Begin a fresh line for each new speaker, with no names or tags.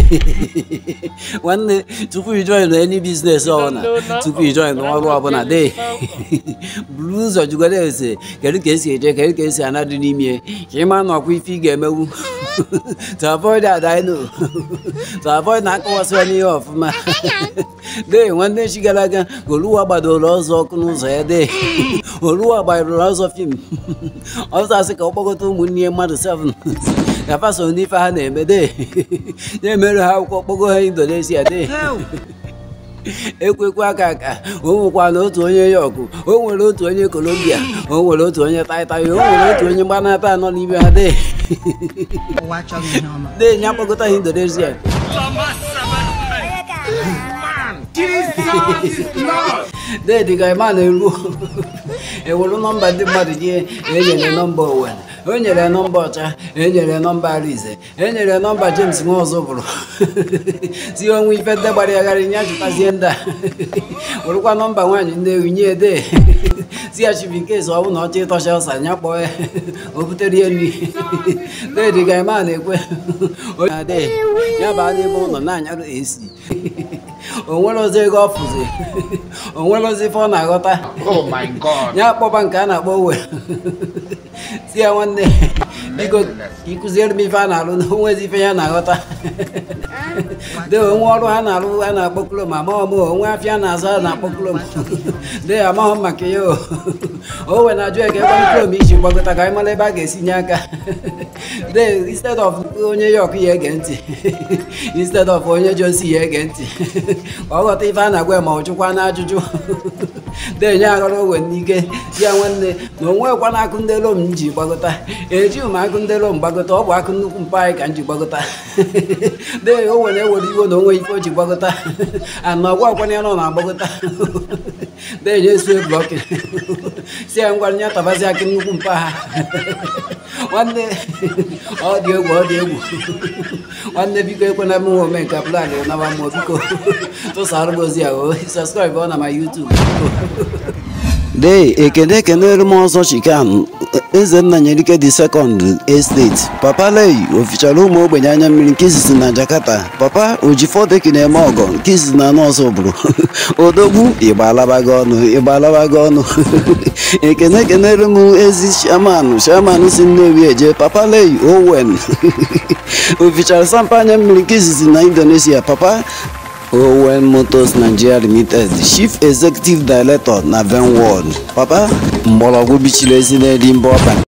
nwanne tupu ijoin any biznes ọbụla tupu ijoin ọrụ ọbụla de buru ụzọ jụgara ese kedu ka esi eje kedu ka esi anadị n'ime ka ịma na ọkwa ife ị ga-emewu to avoid adino to avoid na akọwasịwa n'ihe ọfụma de nwanne chi gara aga oluwa gbadoro ọzọ ọkụ n'ụzọ ya de oluwa gbadoro ọzọ fim ọzọ asị ka ọ kpọkọta ụmụnne mmadụ 7 na faso n'ife ha na-eme de na-emerụ ha akwụkwọ kpogo ha indonesia de ekwekwa aka aka o nwekwana otu onye yok o nwere otu onye kolombia o nwere otu onye taịtaị o nwere otu onye mgbanata anọ n'ime ha de de nya kpọkọta ha indonesia dedi ka ịma na-eru ewuru nọmba ndị mmadụ nye enyere nọmba owere o nyere nọmba ọcha enyere nọmba arize enyere nọmba james nwa ọzọ bụrụ si onwe ife ndị gbara yagharị nya chụtazie ndị a werụkwa nọmba nwaanyị nne ewu nye ede si ya nke ọ bụrụ na ọcha ịtọcha ọsa nya kpọọ ya o butere ihe nri dedi ka ịma na-ekwe ya baa n'ebe ụlọ na-anyarụ esi onwerozi ego ọ fụzi ozi ife ọ na-aghọta oh ya kpọba nke a na-akpọ wee si ya nwanne biko ka ịkụziere m ife a na arụ na onwe ife ya na-aghọta ah. de onwe ọrụ ha na arụ a na-akpọkulo m amaghọ m onwe afịa na-azụ a na-akpọkulo m de amaghọ m maka ya o wee na-ajụ eke ebe mkpụrụ m iji gbagota ka anyị mara ebe a ga-esi nye aka de instead of onye ya ọkụ ya ege ntị instead of onye ji osi ya ege ntị ọ ghọta ife a na-agwa ma ọ jụkwa na ajụjụ de nye aghọrọ owe n'ike ya nwanne na onwekwa na akụ ndị elu m ji gbagota eji agụndelụ mgbagota ọ bụ akụ nnukwu mpa anyị ka m ji gbagota de o nwere ewere iwe na onwe ife o ji gbagota ana ọgwa ọkwanye nọ na agbagota de nye su ebu ọkị si ya ngwa nya tabazi akị nnukwu mpa ha nwanne ọ dị egwu ọ dị egwu nwanne biko ekwena m nwe ome nke plan naba mmụọ biko tụsara m ya o oh, sọskraịbụ ọ na ma yutubu dee ekene ekenere m ọzọ chikan ezenna ike dị sekọnd esteti papa lei ofichara ụmụ ogbenye anya mmiri nke izizi na jakarta papa ojifọdeki na-eme ọgọ nke izizi na nọọsụ bụrụ odogwu ịgbalabago ọnụ ịgbalabago ọnụ ekene ekenere m ezi shaman shaman si nnewi eje papa lei owen ofichara sampa anya mmiri nke izizi na indonesia papa owen motors nigeria limited chief executive director na venworld papa mgbọrọgwụ bichiri ezi n'elu